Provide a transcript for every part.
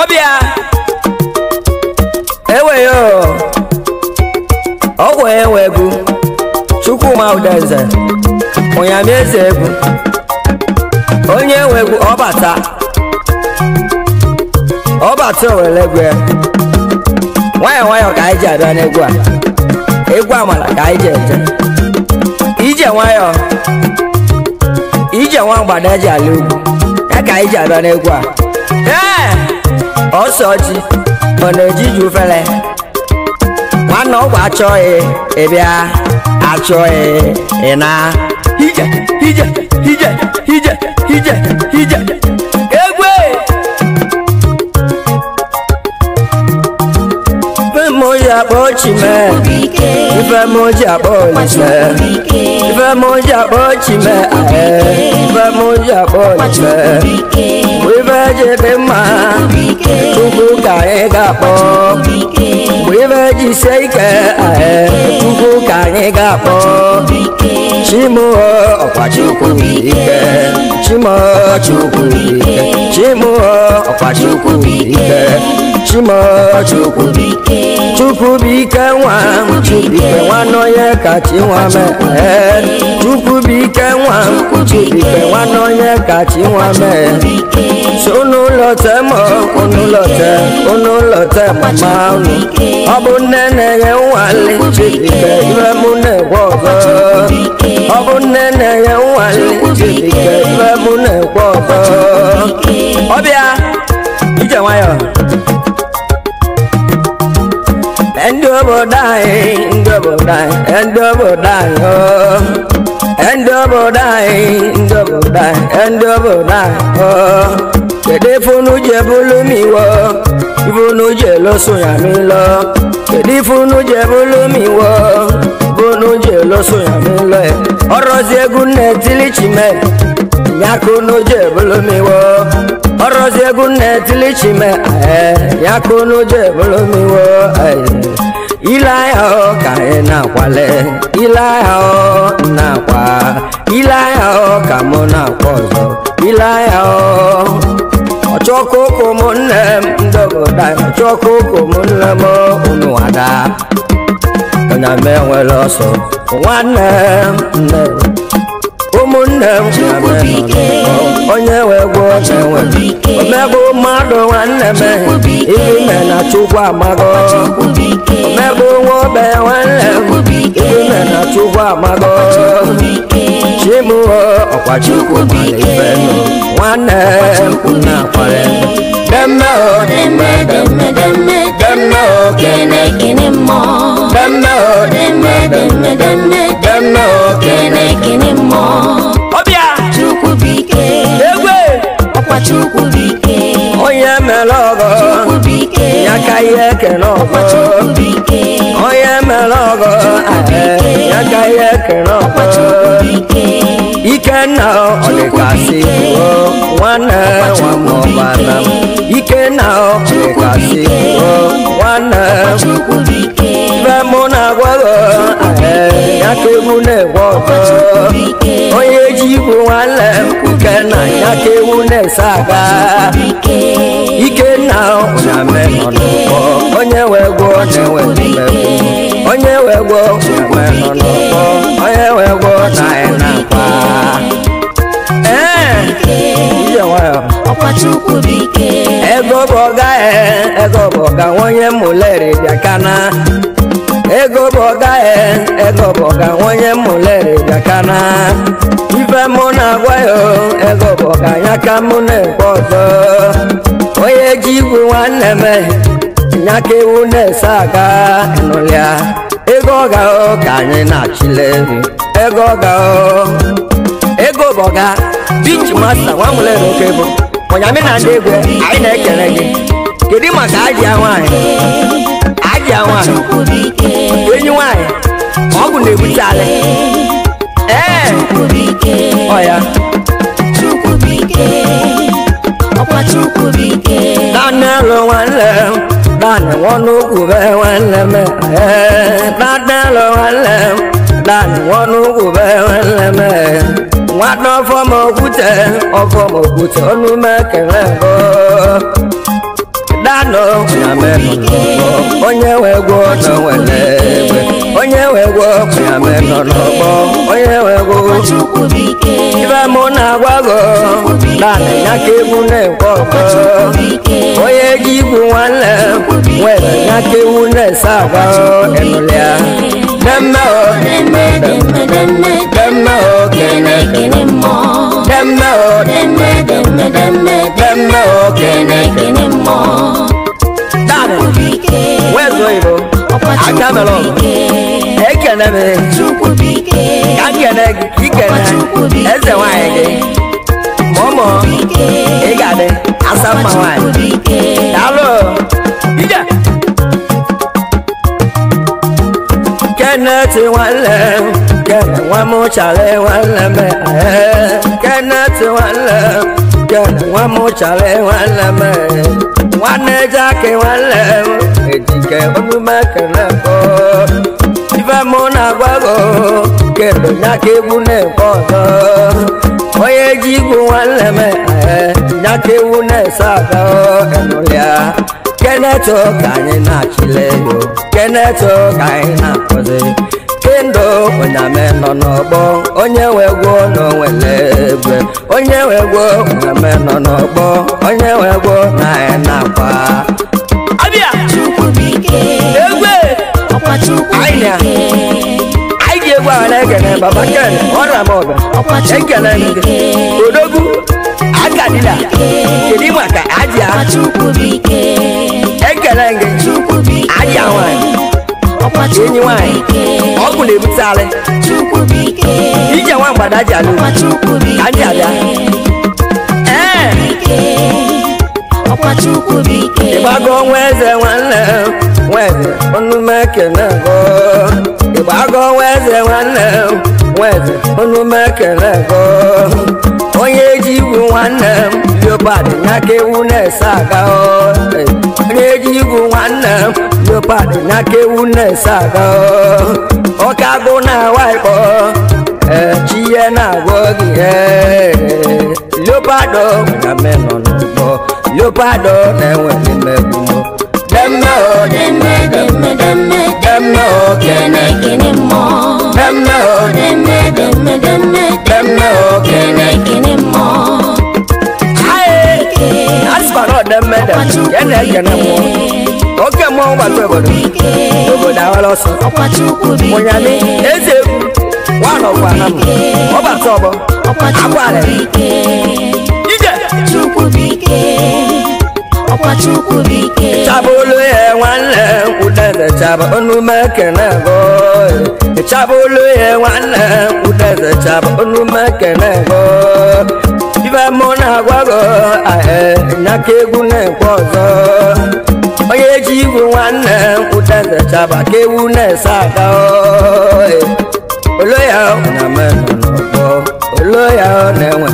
ọbịa ọrụ, ọgwụ enwe egwu chukwuma udeze onyamaeze egwu onye enwe egwu ọbata ọbata owere egwu nwayọọ nwayọọ ka anyị ji abịa n'egwu a egwu amala ka anyị ji eje ije nwayọọ ije nwa mgbada eji ala ugwu ya ka anyị ji abịa n'egwu a ọsọ ji ọ na-ejiju fele nwanne ọgwụ achọghị ịbịa e, e achọghị e, ịna Hije! Hije! ije ije ije ije egwe bemo ya kpọchime ife moja boljime ife moja boljime eh, ife moja boljime ife jebe ma tuku ka e ga po ife jise ike tuku eh, ka e ga po chimo ọkwa chukwu ike chimo chukwu ike chimo ọkwa chukwu ike chimo chukwu ike chukwu bike nwa m bike nwanọye kachi nwa mee chukwu bike nwa m bike nwanọye kachi nwa mee si ụnụụlọ te ma ụnụụlọ te ụnụụlọ te mama ụnụ ọ bụ nne na-enye nwale chibike ibe m na-egwe ọzọ ọ bụ nne na-enye nwale chibike ibe m na-egwe ọzọ ọbịa ije nwayọọ ndị obodo anyị ndị obodo anyị ndị obodo anyị oo oh. ndị obodo anyị ndị obodo anyị ndị obodo anyị oo oh. kedu ife unu ji bụlụ m iwo ife unu ji eloso ya m ilo kedu ife unu ji bụlụ m iwo ife unu ji eloso ya m ilo ọrọzi eh. egwu nna etili chime ya ka unu ji bụlụ orozie gunne tilichime yakunu je bolomiwo ilaya o ka ị na-akwale ilaya o na-akwa ilaya o ka mụ na-akwa ọzọ ilaya o ọchọkụ ụkwụ m nne m ndogoda ọchọkụ ụkwụ m nne m unu ada onye m enwere nwanne m nne nwanne m onye wee gwọ enwe omegbu mmadụ nwanne m ime na chukwu amago omegbu nwa obe nwanne m ime na chukwu amago chimu ọkwa chukwu mara ibe nwanne m na akwara demme o demme demme demme demme o kene kene mmụọ demme o demme demme demme demme o kene kene mmụọ onye mere ọgọ ya ka ihe ekene ọgọ melogo eh, yaka yekiroko ikenna olikasi o nwanne nwamọbana ikenna olikasi o nwanne ibe mụ na-agwago yaka egwu na-egwoko onye ji igwu nwanne ikenna yaka egwu na-ese aka ikenna na menọ n'ụgbọ onye wee gwuo na-enwe wego weno loko oye wego naena kwa iye nwayo ego bụ ọga ego bụ ọga nwonye mụleri bịakana ego bụ ọga ego bụ ọga nwonye mụleri bịakana ife mụ na-agwa ya ego bụ ọga anya ka mụ na-ekpe ọzọ onye ji igwe nwanne m nyaka ewu na-ese aga nụlịa ego ọga ka anyị na-achịle ego ga o, ego bọga bichi masta nwanwere n'oke bụ ọnyamị na ndị egwe anyị na-ekele gị kedu maka ajịa nwaanyị ajịa nwaanyị enyi nwaanyị ọgwụ na-ebute alị ee ọ ya ọkwa Chukwubuike tádẹ́rù wọn lẹ̀ láàrin wọn ló kù bẹ́ẹ̀ wọn lẹ̀ mẹ́ tádẹ́rù wọn lẹ̀ láàrin wọn ló kù bẹ́ẹ̀ wọn lẹ̀ mẹ́ wọn á tán fọmọ òkúta ọfọmọ òkúta ọdún mẹ́kẹ̀rẹ́ bọ́. dano na meno onye we gwo na wele egbe onye we gwo na meno lobo onye we gwo ibe mo na gwago na na ke mu ne ko onye gi gwu nwanne nwere na ke mu ne sa gwa enulia demme o demme demme demme demme o kene kene mo demme o demme demme demme demme o kene kene mo Where's Oibo? Akamelo. Ekeneme. Kakene kikene. I nwanyị gị. Mọmọ. Ị ga-adị. Asa mma nwanyị. Daalụ. Ije. Kenneth nwanne. Kenneth nwa m chara nwanne m. Kenneth nwanne. Ijele wọn mú sàlẹ̀ wọn lẹ́mẹ̀ wọn nẹ́jà kí wọn lẹ̀ èjìkẹ́ olùmọ̀kẹ́lẹ́ kọ́ ife mú nàgbàgbọ́ kẹlò nyákéwu nẹ̀ kọ́tọ́ oye jigbo wọn lẹ́mẹ̀ ẹ̀ nyákéwu nẹ̀ sàkọ́ ẹ̀nulẹ̀ kẹ́nẹ́tọ̀ kàyínà kílẹ̀ yó kẹ́nẹ́tọ̀ kàyínà kọ́sẹ̀ onye ndụ onyame nọ n'ọgbọ onye wegwo na onwere egbe onye wegwo onyame nọ n'ọgbọ onye wegwo na anyị e na-akwa abịa chukwu bike egbe ọkwa chukwu bike na ekene baba ken odogwu akadila kedu maka aja ekele gị aja nwanyị ọkwachi enyi nwanyị ọgwụ na-ebute alị ije nwa mgbada ji alụ ka ndị abịa ịgbago nwa eze nwanne nweze ọnụ mekene go ịgbago nwa eze nwanne nweze ọnụ mekene go onye ji igwu nwanne m leopard ya ewu na-ese aga egwu nwanne leopard na aka ewu na-ese aga ọka agụ na waịkpọ echi ihe na-agwọ gị e. leopard na menọ n'ụgbọ leopard na-enwe mmegbu demme o demme demme demme demme o dem kene dem demme dem demme dem demme dem o kene madam madam yana yana mo oke mo ba to bodo ogo da wa lo so mo nya mi eze wa lo kwa na mo o ba to bo agwa re ije chukwu bike ọkwa chukwu bike chabolo ye nwanne udeze chaba onu meke na go chabolo ye nwanne udeze chaba onu meke na go mụna agwagọ nakegwu na-ekwe ọzọ onye ji igwu nwanne ụteze chaba ka na-ese aka olo ya n'ọgbọ olo ya na-enwe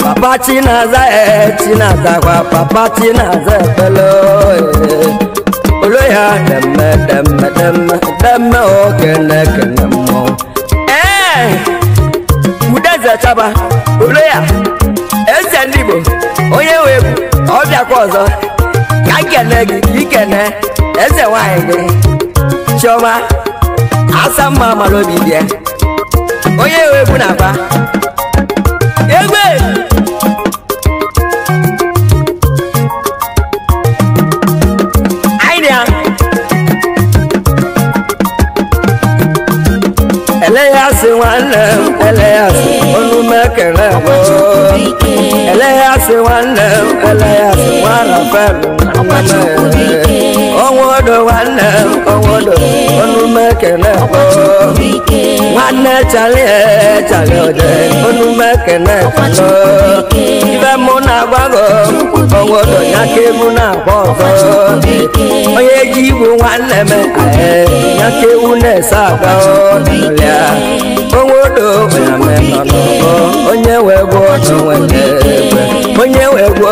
papa chinaza eh, chinazakwa papa chinaza ekpele olo ya demme demme demme demme okene kene mmụọ ee eh, udeze chaba olo ya dibịa ndị Igbo onye nwe egwu ọ bịakwa ọzọ ka nkene gị ikene eze nwanyị gị chiọma asa mma mara obi bịa onye nwe egwu na-agba egbe ele ya sị nwanne m ele ya sị ọnụ mekere ẹlẹ́yà sí wọn lẹ́ ọlẹ́yà sí wọn rẹ̀ fẹ́ mi ọnwụdụ nwanne ọnwụdụ ọnụmekene nwanne chalie chalie ode ọnụmekene ibe mụ na-agbago ọnwụdụ ya ka ewu na-agba ọzọ onye ji igbu nwanne m ya ka ewu na-ese aka ọlịa onwụdụ onye wee bụ ọdụ nwere egbe onye nwe ego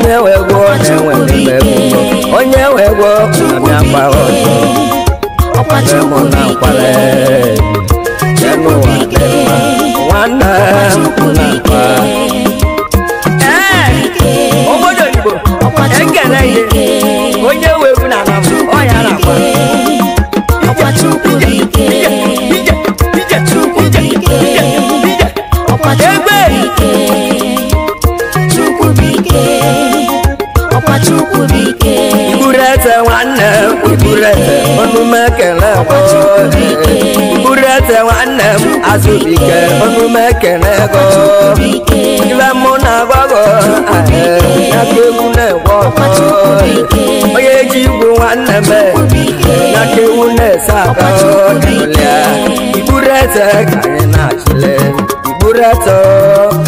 nyabe nọ n'ọkọ onye nwe ego na-enwe n'ebe ego onye nwe ego na-abịa gbara ọtọ ọkpachi mụ na nkwale n'ụwa dị mma nwanne m na nkwa nwere nwanne m azụbike ọnụmekenego ibe mụ na agbọghọ aka egwu na-egwe onye ji igwu nwanne m n'aka ewu na-ese aka ọdịlịa iburu eze ka anyị na-achịle iburu eze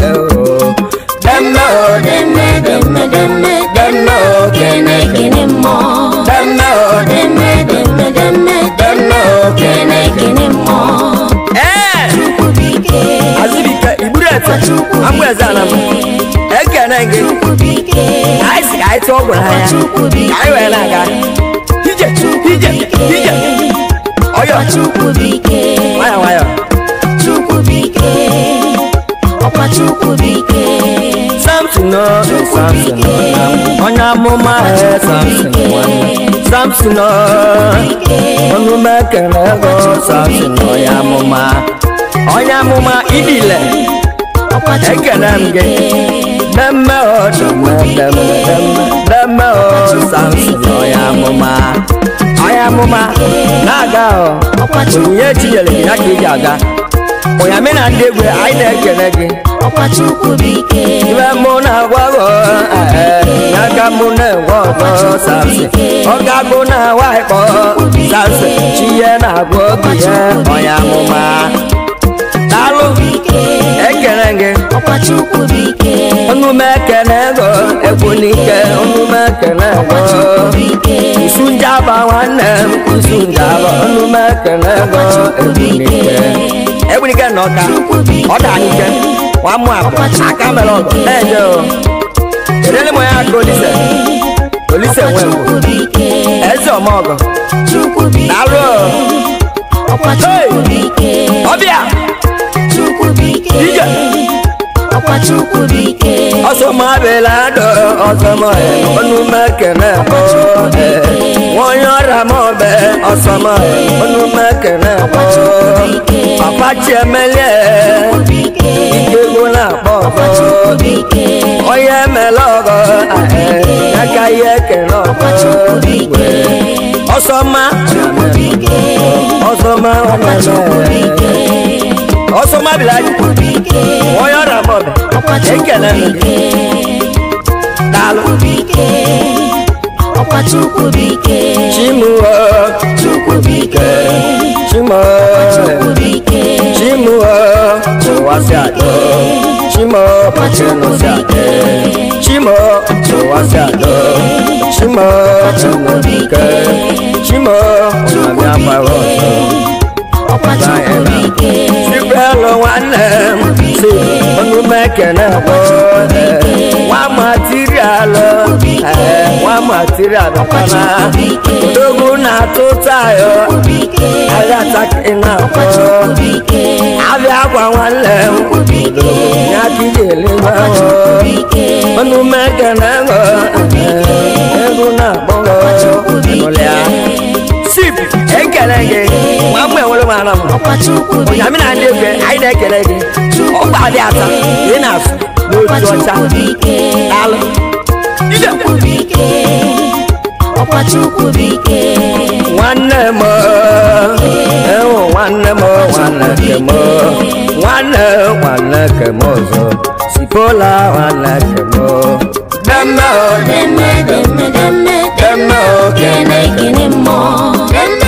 ero demme demme demme demme demme gị anyị si ka anyị tụọ gwara ha ya ka anyị wee na-aga ije ije ije ọyọ nwayọ nwayọ Samson ọ Samson ọ onye amụma ha e, Samson nwanne Samson ọ ọnụma ekele ego Samson onye amụma onye amụma idile ekele m gị dama o dama dama dama dama o samson ọya mọma ọya mọma na-aga o onyinye chinyere gị ya ka eji aga onyame na ndị egwe anyị na-ekele gị ibe mụ na-agwa gị n'aka mụ na-enwe ọgọ samson ọga na-awa ịkpọ samson chi na-agwa obi eh, ọya mụma alụ ekenege ọnụme ekene ego egbunike ọnụme ekene ego sunjaba nwanne m sunjaba ọnụme ekene ego egbunike egbunike na ọka ọdanike nwamụ abụ aka mere ọgụ na-eje o kedele m ya aka olise olise nwe m eze ọmọgọ na alụ ọbịa ọsọmọ abẹlẹ adọ ọsọmọ ẹ ọnu mẹkẹnẹ ọbẹ wọn yọra mọ bẹ ọsọmọ ẹ ọnu mẹkẹnẹ ọbẹ apachi ẹmẹlẹ ìgbégbó náà pọ ọbẹ ọyẹ ẹmẹlẹ ọgọ ẹ yàgá yẹ kẹnẹ ọbẹ ọsọmọ ọsọmọ ọmọlẹ ọsọma bilayi wọyọ na mọbẹ ekele m daalụ chimuo chimuo chimuo tụwasịado chimuo tụnụsịado chimuo tụwasịado chimuo tụnụbike chimuo ụnamịa gbara ọsọ ọkpachukwu hello nwanne m si ọnụ mekene bụ nwa material uh, nwa material na-atụ tayo ahịa na abịa akwa nwanne m ya kigele ego na-akpọ n'ụlọ ekele gị nwa mgbe nwere m ara m ya mi na ndị egwe anyị na-ekele gị ọgba dị ata ị na-asụ n'otu ọcha alụ nwanne m ewu nwanne m nwanne ke m nwanne nwanne ke m ọzọ sipola nwanne ke m demme o demme demme demme demme o kene kene mmụọ demme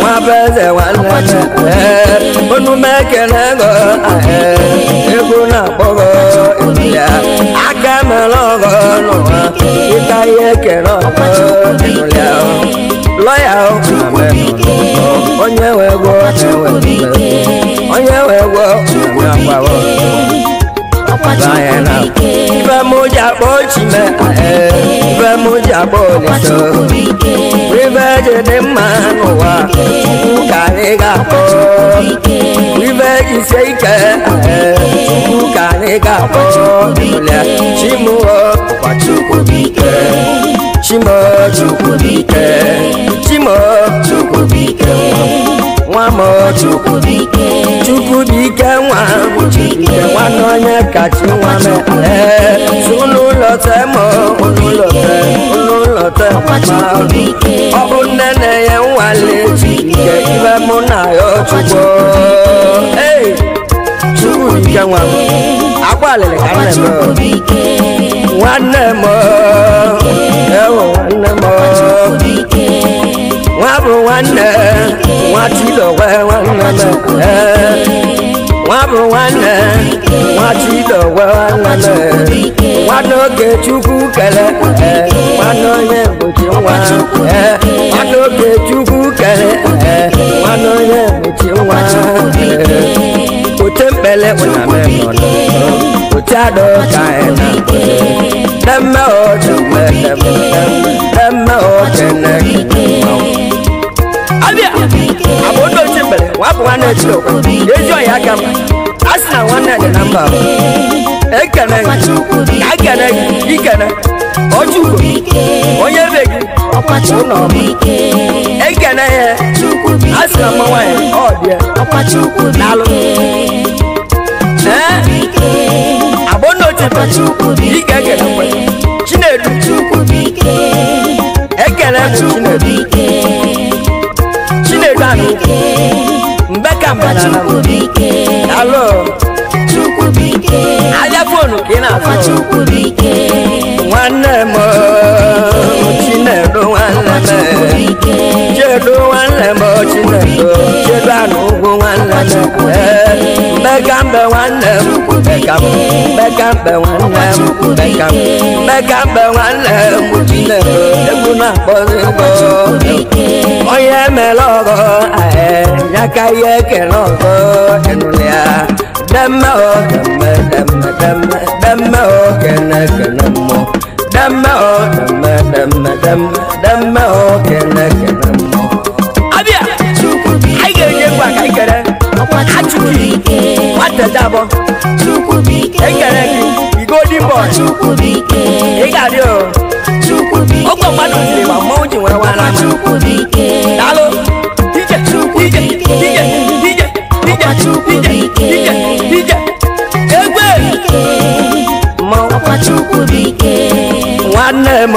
nwa beze nwanne onu mekele go egwu na-akpọgo ya aka mere ọgọ n'ụwa ịta ihe kere ọgọ lọya onye wee gwọ onye wee gwọ bayana Vemuja bochime Vemuja boniso Riveje de manuwa Kukanega po Riveje seike Kukanega po Chimuo Kwachukubike Chimo Chukubike Chimo Chukubike mama Chukwudike Chukwudike nwa Chukwudike nwa na onye kacha nwa mee n'ụlọ te ma n'ụlọ te n'ụlọ te ma ọ bụ nne na-enye nwale nke ibe mụ na ya Chukwu ee Chukwudike nwa agbalịrị ka nne m nwanne m ewo nwanne m wọn bù wọn nẹ wọn ti lọ wẹ wọn nana ẹ wọn bù wọn nẹ wọn ti lọ wẹ wọn nana wọn n'oge chukwu kele ẹ wọn n'onye mgbochi nwa ẹ wọn n'oge chukwu kele ẹ wọn mgbochi nwa ote mpele ụnamemọnọ ote adọ ka ẹ na mkpere. Nemme ojume nemme ojene Abia abodo ti bere wa bu wana ti o ejo ya gam asna wana ni namba ekene agene ikene ojuko onye be gi ọkwachu n'ọbụ ekene ya asna mmanwa ya ọ bịa chukubike onotibo ikeke n'ụkwe chinedu ekele bụ chinedu chinedu anụ mgbe ka mgbe na alo ahịa fonu ka ị na-afọ nwanne m chinedu nwanne m chedu nwanne m chinedu chedu anụ ugwu nwanne m mega mbe nwanne m mega m mega mbe nwanne m mega m mega mbe nwanne m nne m egwu na-akpọzi mbo onye mere ọgọ ya ka ihe ekele ọgọ ịnụla ya demme o demme demme demme demme o kene kene mmụọ demme o demme demme demme demme o kene kene mmụọ Chukwubuike Nwatedabọ Chukwubuike Ekere gị Igodi boy Chukwubuike Ị ga-adị o Chukwubuike Ọkpọ mmadụ jiri ma mmanwụ ji nwere nwa n'ama Chukwubuike Daalụ Ije Chukwubuike Ije Ije Ije Chukwubuike Ije Ije Egwe Mmanwụ Chukwubuike nwanne m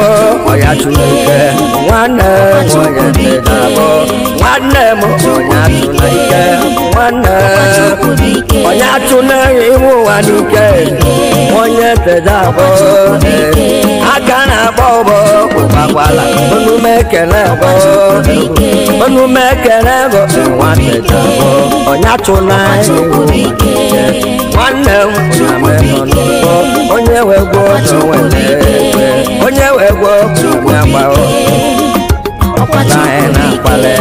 ọya Chineke nwanne m onye tega m nwanne m ọya Chineke nwanne m ọya Chineke iwu ụwa n'ike onye tega m aka na-akpọ ụbọ Wala onu mekele bụ onu mekele bụ nwanne jọbụ onye atụla nwanne m na-amenọ n'ụgbọ onye wegwo onwe ekwe onye wegwo onye agbaghọ o anyị na-akpali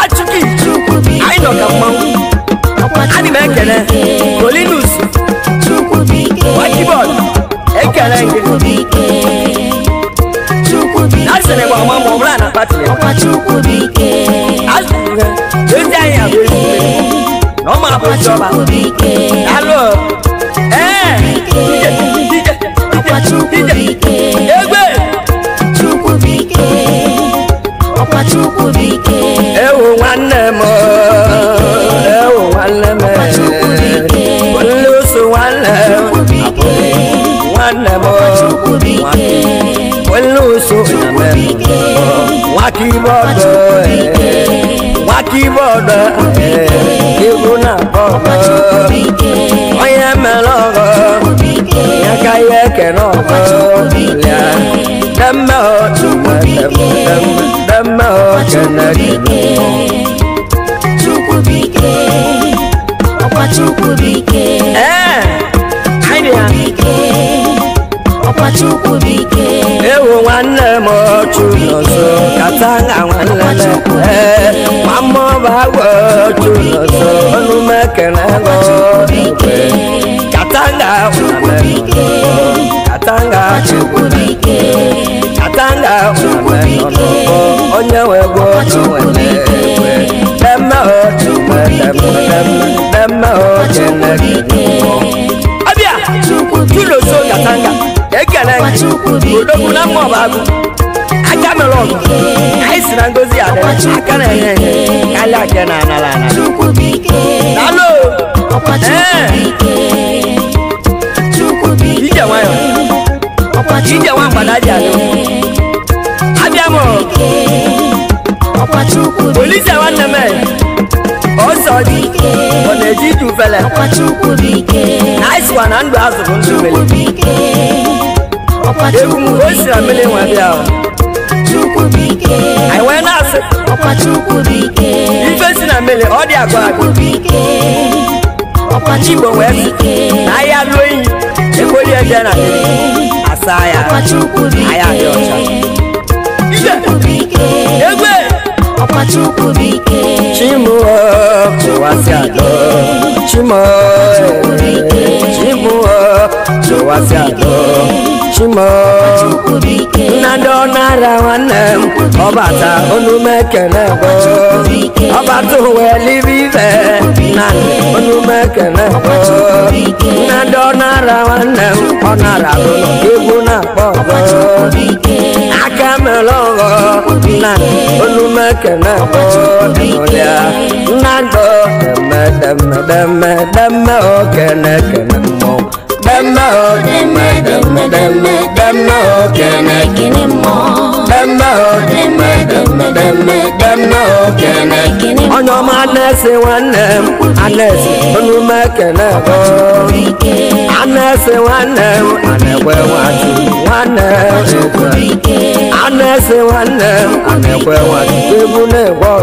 achụkị anyị nọ ka mmanwụ adị m ekele kolinus wakibọd ekele gị Nasịrị gwa nwa ma ọ bụla na pati ya. Ọkachukwu bụ ike. Azụrụ ha, ezi anyị abụ ezigbo. Na ọ ma bụ chọba. Alụ. Ee. Ọkachukwu bụ ike. Ọkachukwu bụ ike. wakibọdọ ẹ wakibọdọ ẹ ebuna bọdọ ọyẹ mẹlọrọ yakayẹ kẹnọrọ lẹ dẹmẹ ọtún dẹmẹ ọkẹnẹ kẹnọ. Ọkwa Chukwu bụ ike. Ee, Chukwu bụ ike. Ọkpachukwu bike. Ewu nwanne m ochu n'ọzọ kata na nwanne m ee ma mma ọba agwọ ochu n'ọzọ ọnụ m ekele gọ katanga nwanne m katanga katanga nwanne m onye nwe gwo ochu nwanne m demme ochu demme ochu nwanne m. Abịa, Chuloso Katanga. Kenengi Odogwu na mmụọ bagu aka mere ọgụ anyị na ngozi adịrị aka na enye enye karịa aka na anara anara dalo ije nwayọ ije nwa mgbada ji adị abịa m polisi nwanne m ọsọ dị ọ na-eji ije ufele na ịsịkwa na ndụ ọkọchukwu bụ ike anyị wee na-asị ọkọchukwu bụ ike ife si na mmele ọ dị agwa agwa chigbo wee sị na ahịa lụọ iyi ekweli na ya anyị adị ọcha egwu Ọkachukwu Chimoo Tụwasịadọ Chimoo Chimoo Tụwasịadọ Chimoo Nnadị ọnara nwanne m ọbata olu mekele gboo ọba na olumekene ọdụnụlịa nnago deme oh, oh. Demo, demo, demo, demo, demo, can I get it more? Demo, demo, demo, demo, demo, can I get it more? On your madness, one name, unless you make an effort. Unless one name, I never want to. One name, unless one name, I never want to. You will never.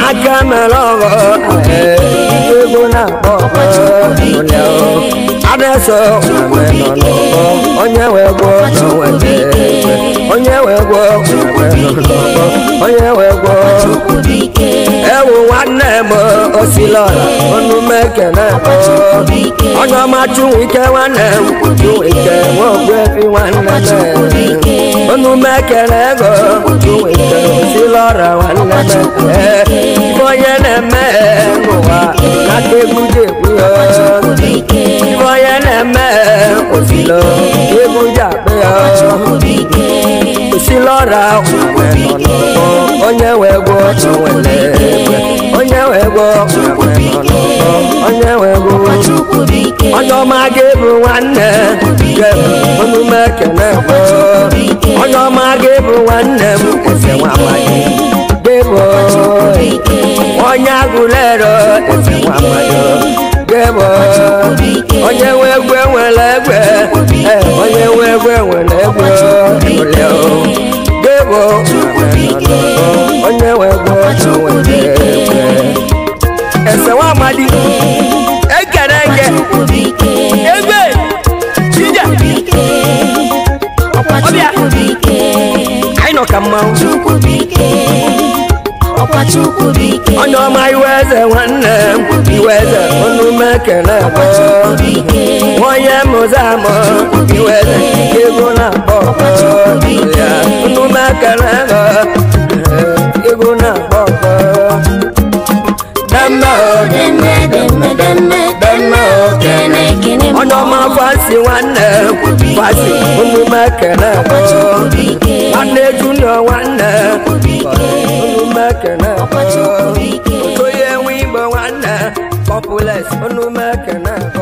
I come along. na kpọkọ onye adịsọ onwe nọ n'ọkpọ onye wee gwọ onwe na-ekpe onye wee gwọ onwe nọ n'ọkpọ onye wee gwọ ewu nwanne m osilọla ọnụ meke na-akpọ onye ọma chunwike nwanne m chunwike nwaogwefi nwanne m ọnụ meke na ego chunwike osilọra nwanne m ee ibọyẹlẹ mẹ́ẹ̀kọ́ wa lágbègbè kúyọ ibọyẹlẹ mẹ́ẹ̀kọ́ sí lọ gbẹgbẹjà pẹ́yà kò sí lọ́ra òwe lọ́lọ́kọ́ ọ̀nyẹ́wẹ̀gbọ́ ọ̀wẹ̀lẹ́gbẹ́ ọ̀nyẹ́wẹ̀gbọ́ ọ̀wẹ̀lọ́lọ́kọ́ ọ̀nyẹ́wẹ̀gbọ́ ọjọ́ máa gébù nwanne gébù onumekene gbọ́ ọjọ́ máa gébù nwanne m ẹsẹ̀ wọn àmàlẹ́ gbébù ọnyagulero etiwamado gẹwọ onye nwe egwe nwere egwe onye nwe egwe eh, nwere egwe ole o gẹwọ onye nwe egwe nwere egwe ẹsẹ wa amadi ekere eke egbe jija ọbịa anyị nọ ka mmanwụ ọkwa chukwu bụ ike onye ọma iwe eze nwanne m iwe eze ọnụ mekele akpọ onye mụzi amụ iwe eze nke ego na-akpọ ọnụ mekele akpọ eh, ego na-akpọ ọkpọ demme demme demme demme demme okene onye ọma fasi nwanne fasi ọnụ mekele akpọ nwanne junior nwanne Chukwu ike. Okoye nwigbo nwanna, populous, onu mekana.